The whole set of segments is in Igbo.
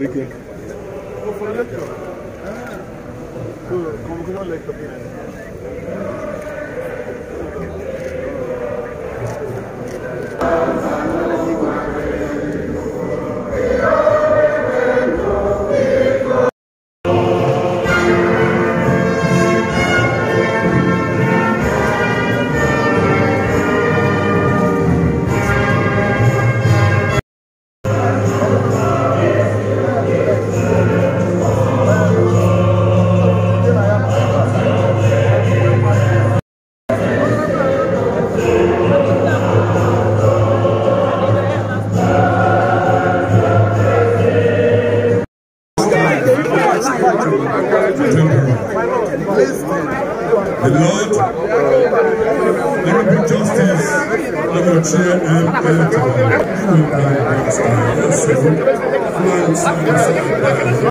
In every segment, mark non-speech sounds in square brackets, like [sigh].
Vilken? Då får du lätt göra. Kommer kunna lägga upp chair and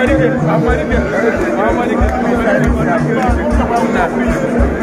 Amerika, Amerika, Amerika, Amerika, Amerika, Amerika, Amerika, Amerika, Amerika,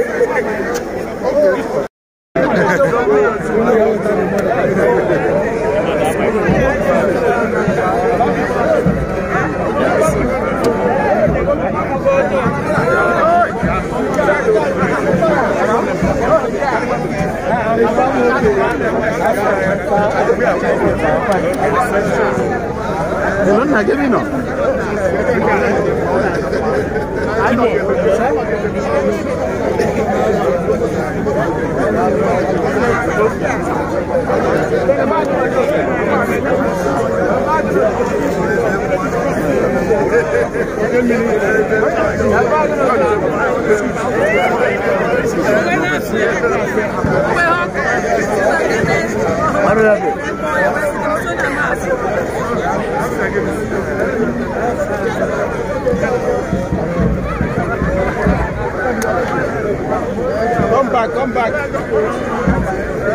Thank [laughs] you. Come back, come back. Come back.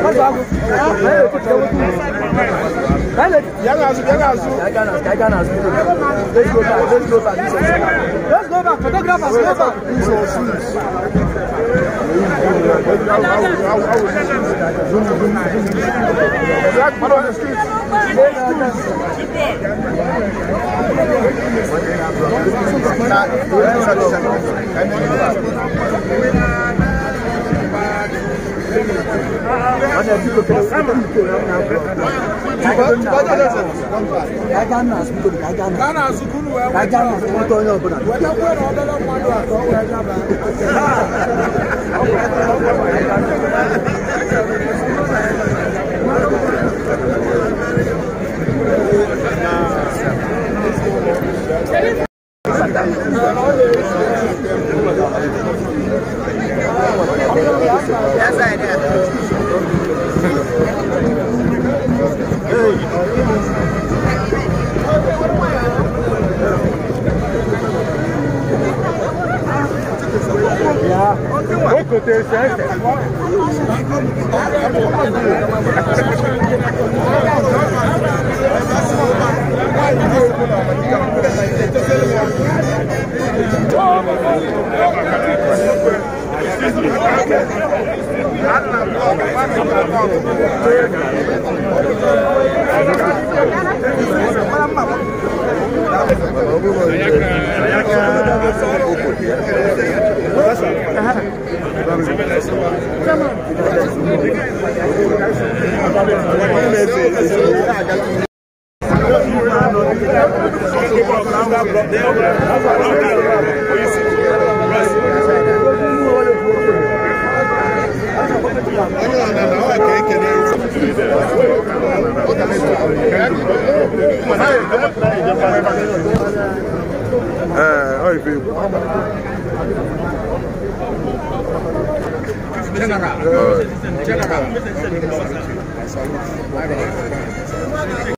Let's go back. Let's go back. Let's go back. Photographers, go back. Black man on the street. Not, azụta onye ọbụla Gracias. General. General.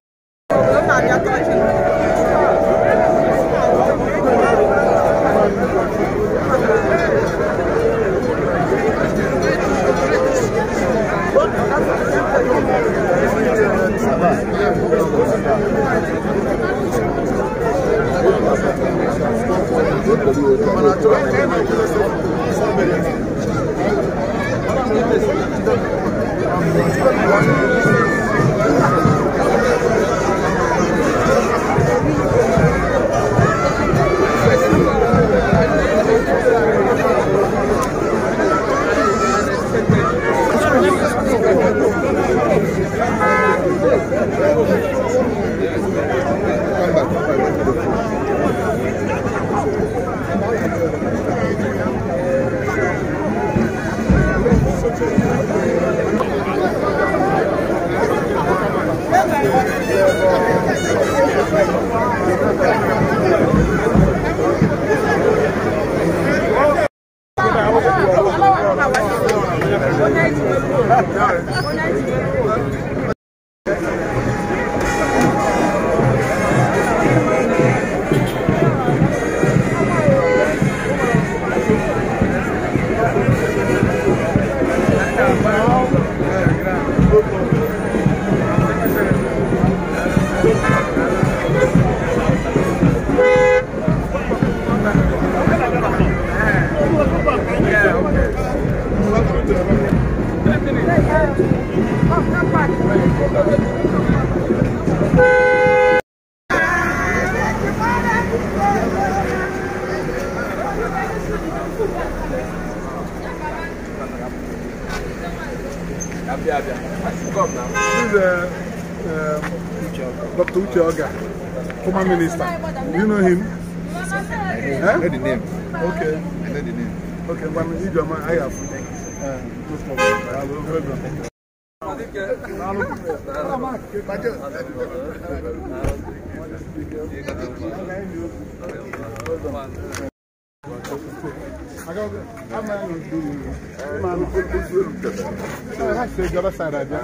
Thank you. Dr. Uche former minister. Do you know him? I know the name. Okay. I know the name. Okay, Mami Ijoma, I have. Uh, no ìjọba sára jẹ́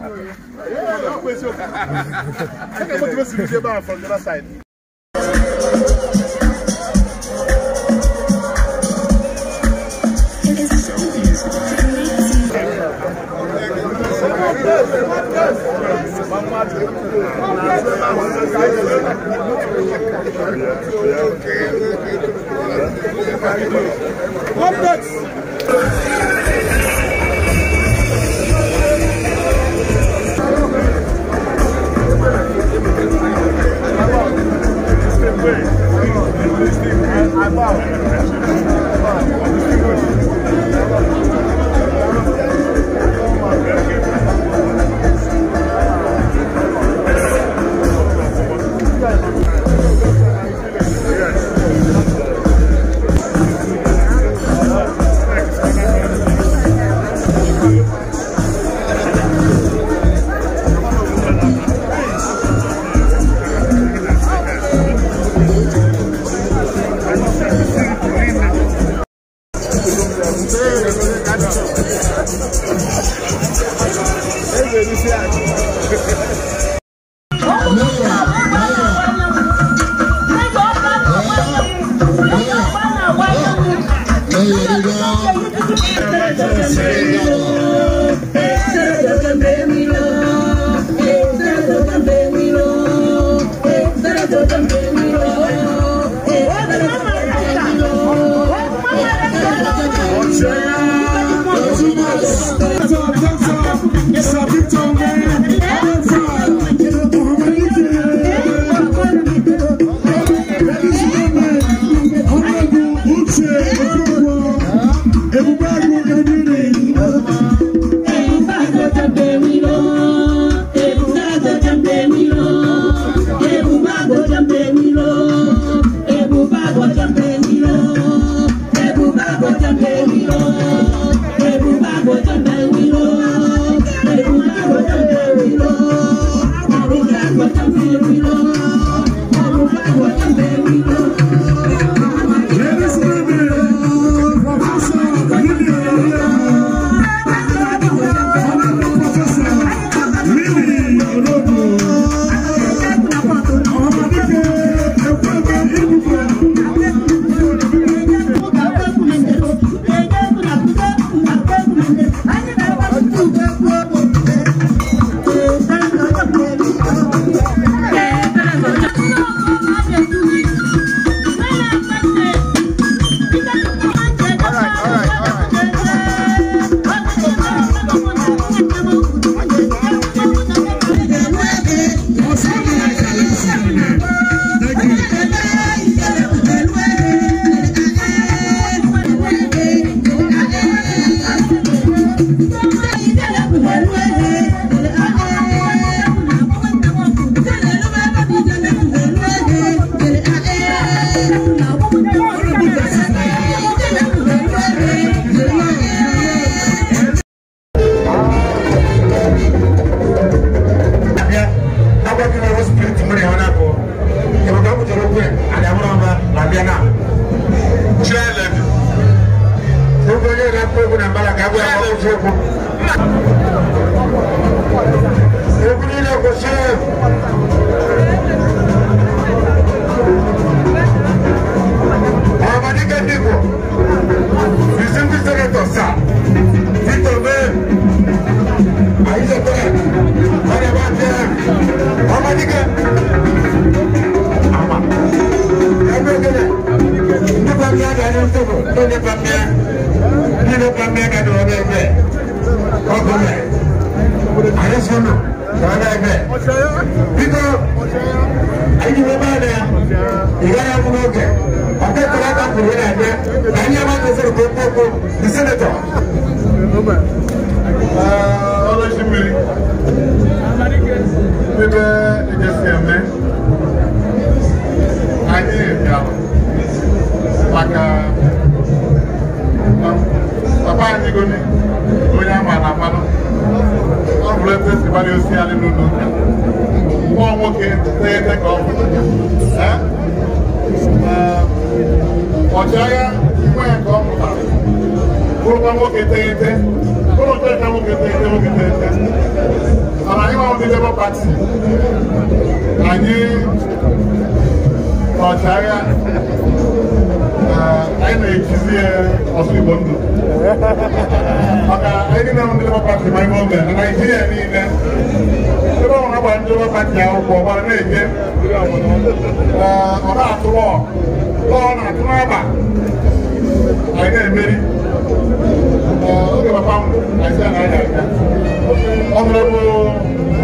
I can't go to the bar from the other side. What next? I, I love it. I love it. ẹni sọ̀rọ̀ tó nípa mẹ́ bí nípa mẹ́ kẹ́ni ọ̀dọ̀ ẹgbẹ́ ọkùnrin àyẹ̀sọ́nù ọ̀dọ̀ ẹgbẹ́ bíkọ́ ẹ̀yìnbó bá dẹ̀ ìyára fún ọkẹ́ ọkẹ́ kọ́lá ká kùnú náà dẹ́ ẹ̀yìn ẹ̀ bá tó sọ̀rọ̀ kókókó ní sẹ́nẹ̀tọ̀. ọlọ́sìn mi bíbẹ́ ẹ̀jẹ̀ sí ẹ̀mẹ́. onye ama na mmanụ ọ bụrụ ebe si gbara osi alị n'ụlọ ụka nwa nwoke na-ete ka ọ bụ ọchịagha nwa ya ka ọ pụtara bụrụkwa nwoke teghete bụrụ ka nwoke teghete nwoke teghete mana anyị anyị ọchịagha anyị na-etizi ọsụ Igbo ndụ maka ndị na-ahụ ndị Labour Party ma ime oge na Naịjirịa niile ebe ọ na-agba ndị Labour Party akwụkwọ ọ gbara na-eje ọ na-atụ ọ ọ na-atụ n'aba anyị na-emeri oge papa m na-esi na anyị aga ọnọdụ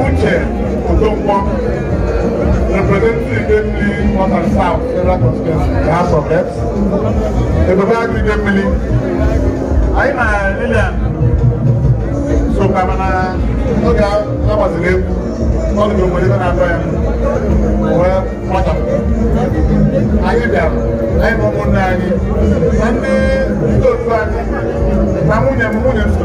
uche representing the North and South federal constituency the House of Reps ebaba agri de mmiri anyị na lilian sokwa mana oge agbaziri egwu ọdụ bụ obodo ebe na-atọ ya wee kpọchapụ anyị bịara anyị bụ ụmụnne anyị na ndị ndị otu anyị na nwunye m nwunye m so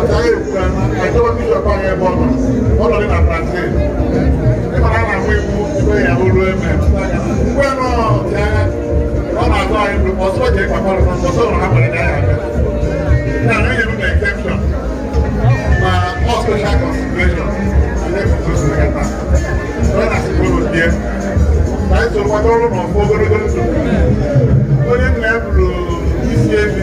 ọ̀tá èkó ẹjọ́ bí sọ̀kọ́ yẹn bọ̀ nù ọ̀dọ̀ ní nàpàṣẹ nípa náà àwọn ewu ìgbé ìyàwó ló ẹ̀mẹ̀ ìgbé náà ọ̀tá ọ̀nà àtọ́ àyẹ̀wò ọ̀sọ́ jẹ́ pàpọ̀ lọ́sọ̀ ọ̀sọ́ ọ̀nà àbọ̀lẹ̀ dáyà rẹ̀ ní àwọn èyí ló exception ma all special consideration alẹ́kùn tó sì lẹ́kàtà lọ́nà àsìkò lò díẹ̀ láì sọ̀rọ̀ wájú ọlọ́run ọ̀fọ́ gbọ́dọ́gbọ́dọ́ tó onye nna ya bụrụ isi ebi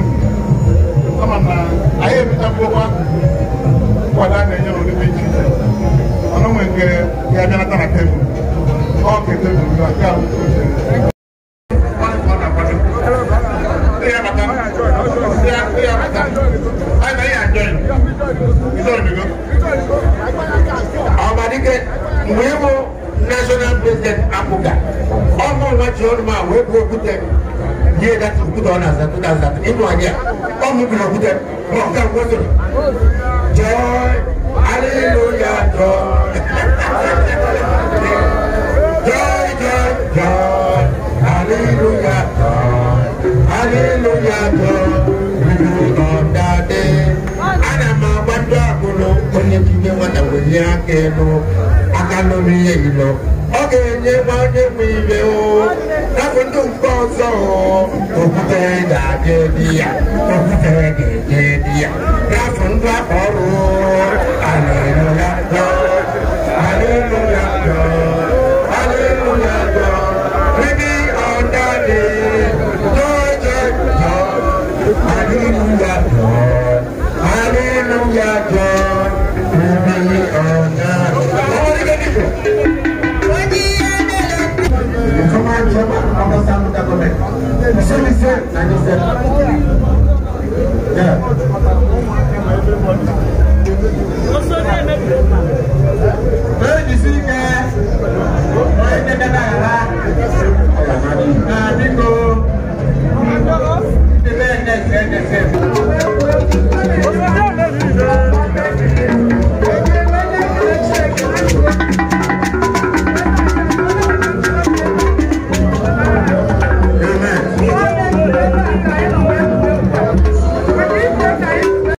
ebita mbowa wala na enye n'olu bi ji ọnụ nwe nke ya bịa nata na tebụl ọ ka tebụl na nke ahụ nke oche mgbe ịbụ national president akwụga ọ bụ nwa ji ọnụ ma wee bụ okwute ihe data okwute ọ na-aza 2000 ịnụ anya all moving of them. But God was it. Joy, hallelujah, joy. joy, joy, joy, hallelujah, joy, hallelujah, joy. We do on that day. I am a wonder, I go, only to me what I will hear, I go, I can't know me, you know. ga-enyekwa onye nwe ibe oh. nabụ ndị mgbe ọzọ okwutere ga-aga edi ya okwutere ga-eje edi ya n'afọ ndị aka ọrụ a na-eru ya